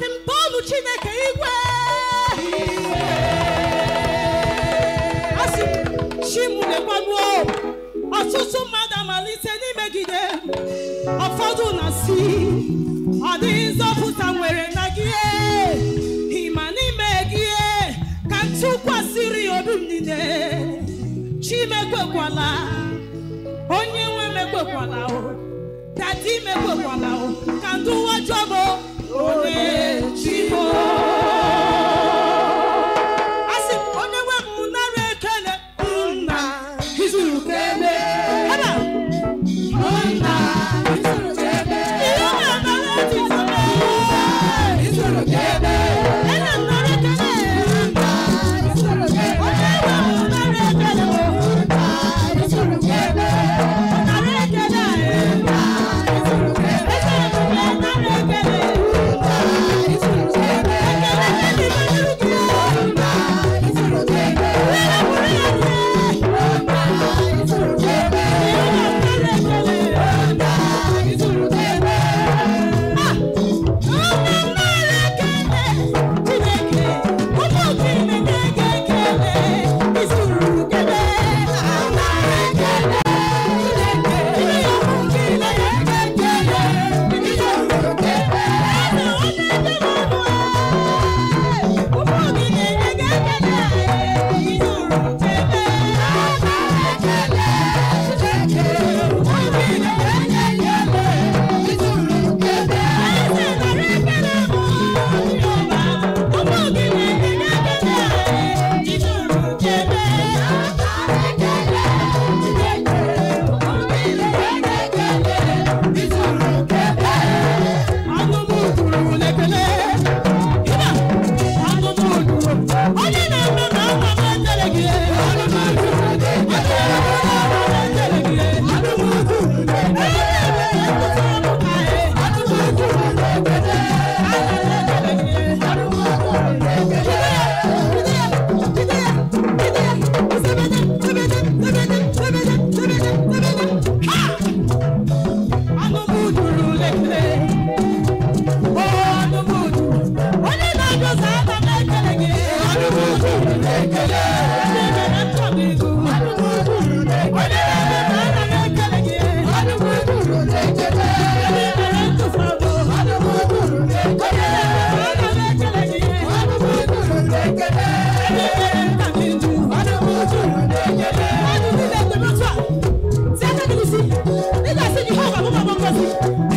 asị m Chineke igwe asị m ọtụtụ mmadụ amalite n'imegide ụfọdụ na si ọ dịghị nzọpụta nwere na gị e. ịma n'ime gị e, ka ntụkwasịrị obi m niile chimekwekwala onye nwe mekwekwala dadi mekwekwala ka ndị ụwa jọbụ onye people. Thank you.